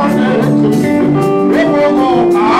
ọ̀sẹ̀ tó ti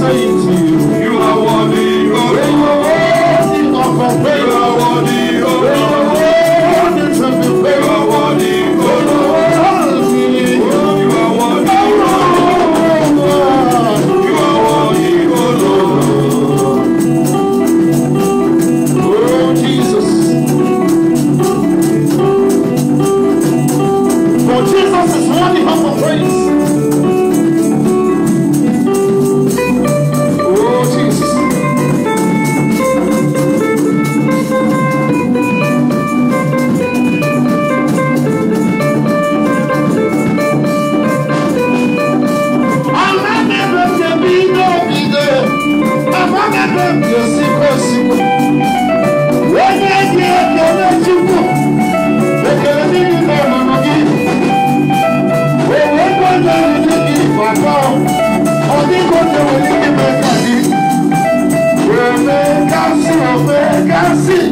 saying to you. akọ onígbòde wòlíì mẹ́ta ni wèmí kásì òfé kásì.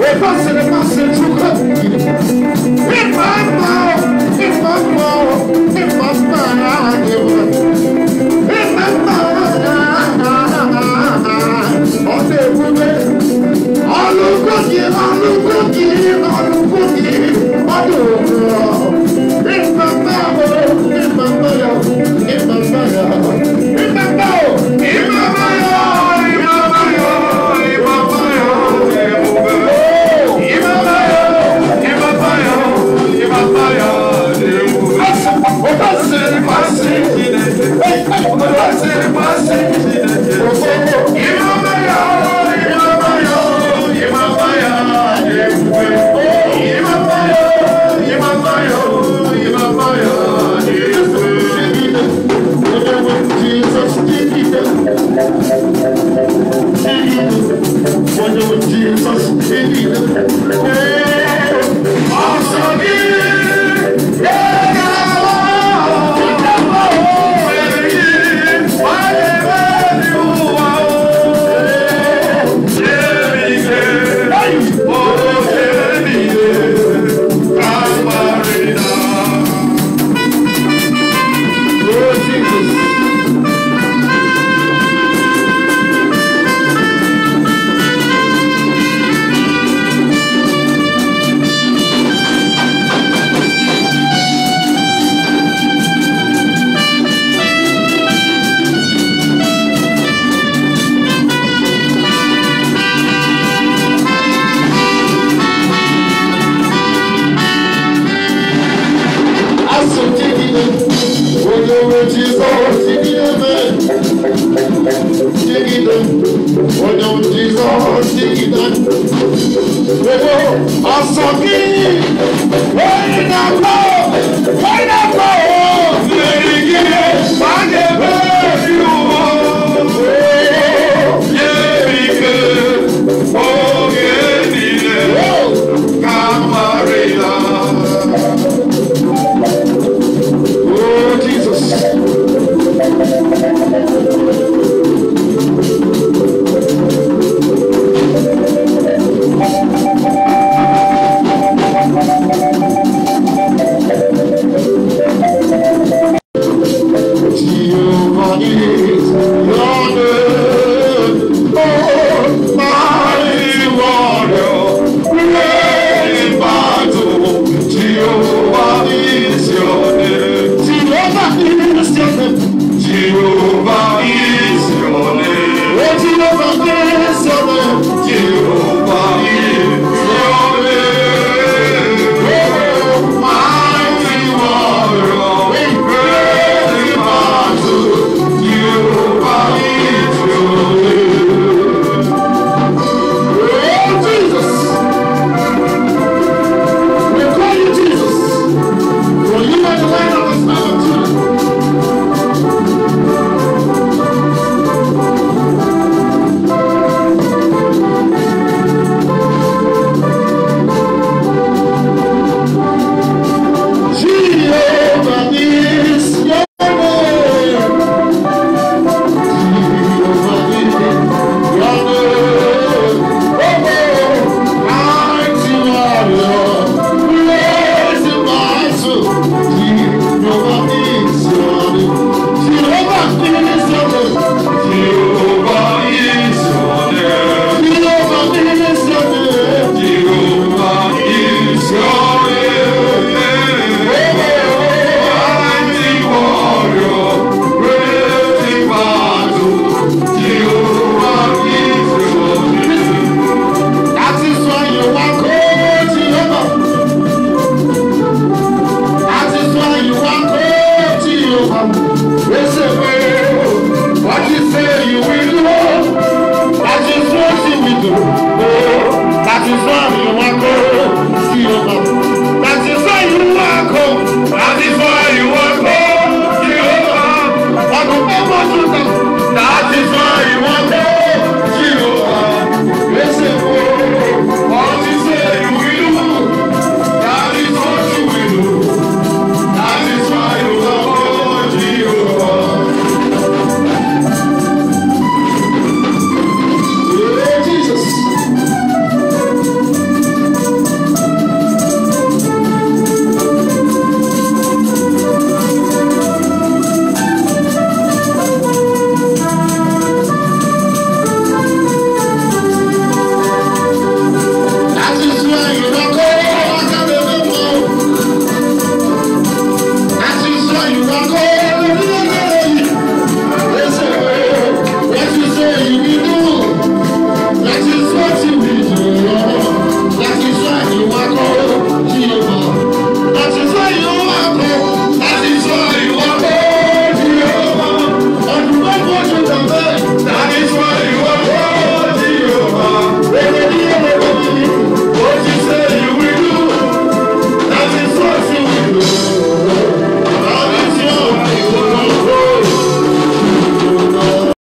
Efface les pensées chocolatées. Et maman, et maman, et maman, et maman, on est bourré. On nous conduit, on nous conduit, on nous conduit, on nous conduit. òsì náà. Owó ọ̀sán kìí, ó yìí náà